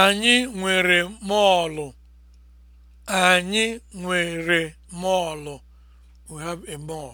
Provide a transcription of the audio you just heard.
Anyị nwere mọọlụ. Anyị nwere mọọlụ. We have a mall.